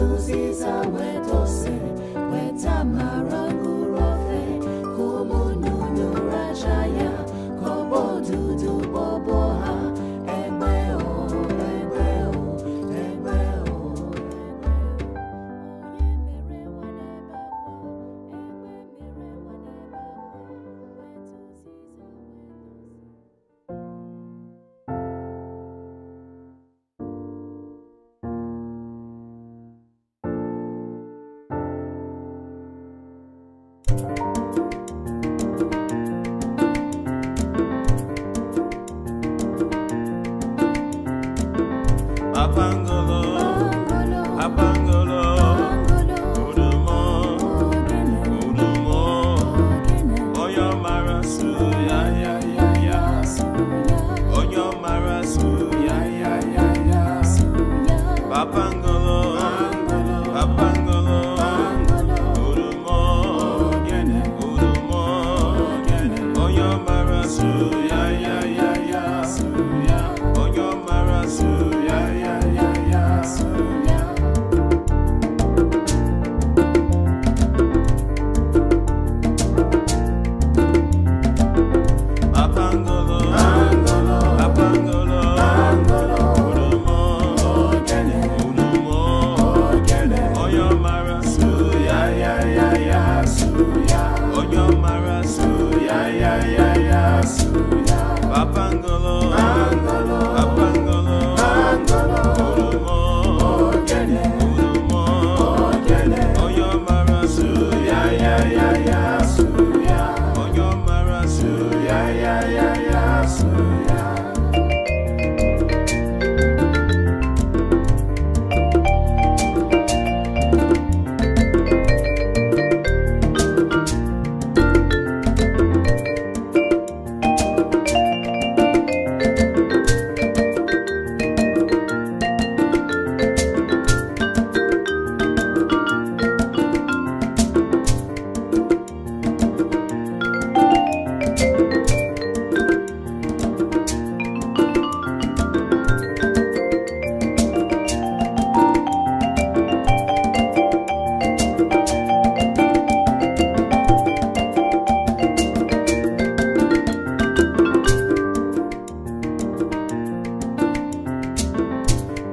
Suzy Zawetose.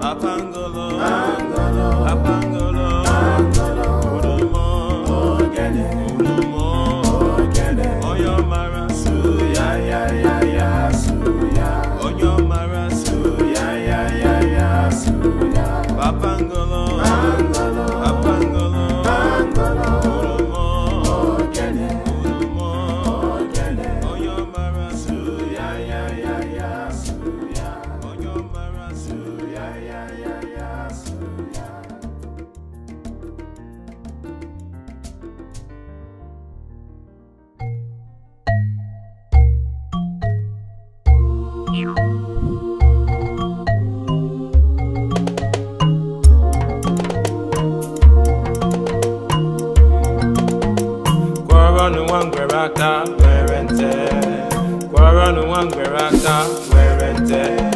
Apangolo. Apangolo. Apangolo.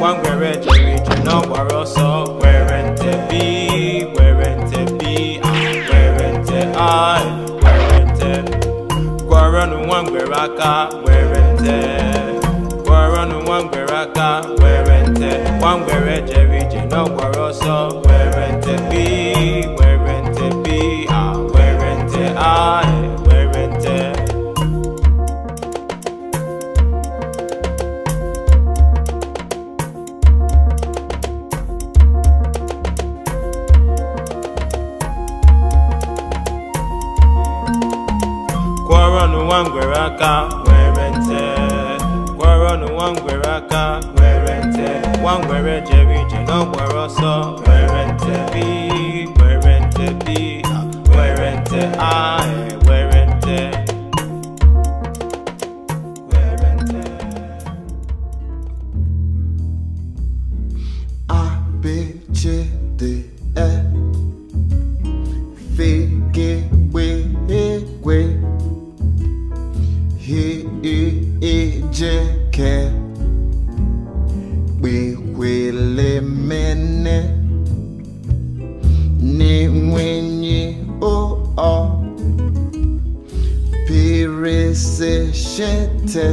One nwa ngwere jere ije n'ọgbara ọsọ were nte bi were nte Where were nte ai were nte gwọrọnụ nwa one aka were nte gwọrọnụ nwa ngwere aka Where nte nwa ngwere jere ije n'ọgbara ọsọ Where nwere nte nwa ngwere jere ije where ọsọ nwere nte bi nwere nte bi nwere nte a Nesecete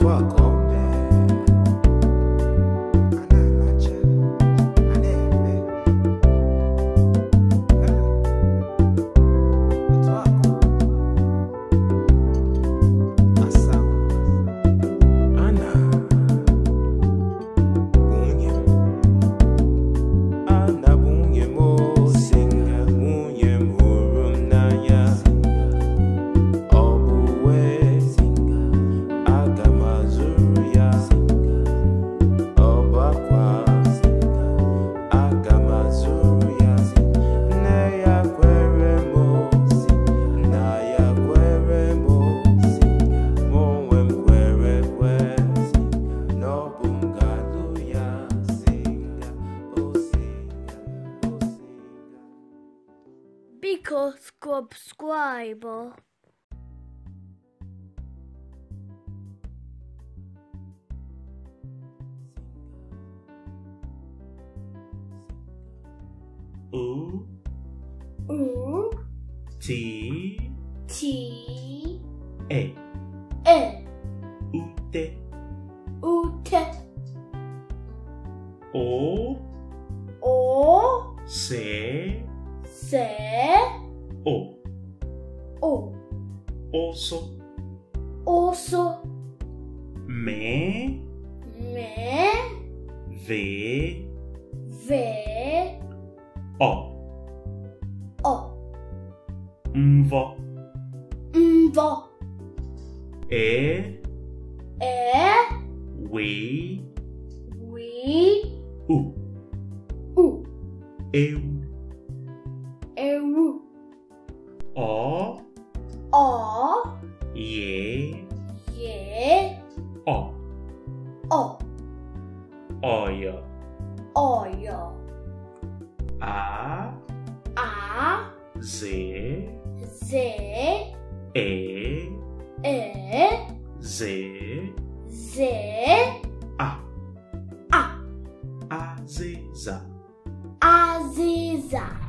toi subscribe. U U T T E E Ute Ute O O Se Se O. O. Osso. Osso. Me. Me. Ve. Ve. O. O. Mvo. Mvo. E. E. We. We. U. U. Eu. oil oil a a z z e e z z a a aziza aziza